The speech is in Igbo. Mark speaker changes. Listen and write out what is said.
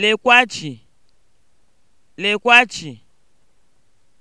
Speaker 1: lekwa chi lekwa chi